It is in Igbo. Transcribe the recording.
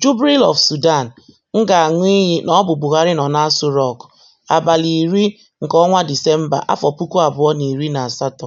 Jubril of Sudan M ga-aṅụ iyi na ọ bụ Buhari nọ n'Aso Rock, abalị iri nke ọnwa Disemba, afọ puku abụọ na na iri asatọ.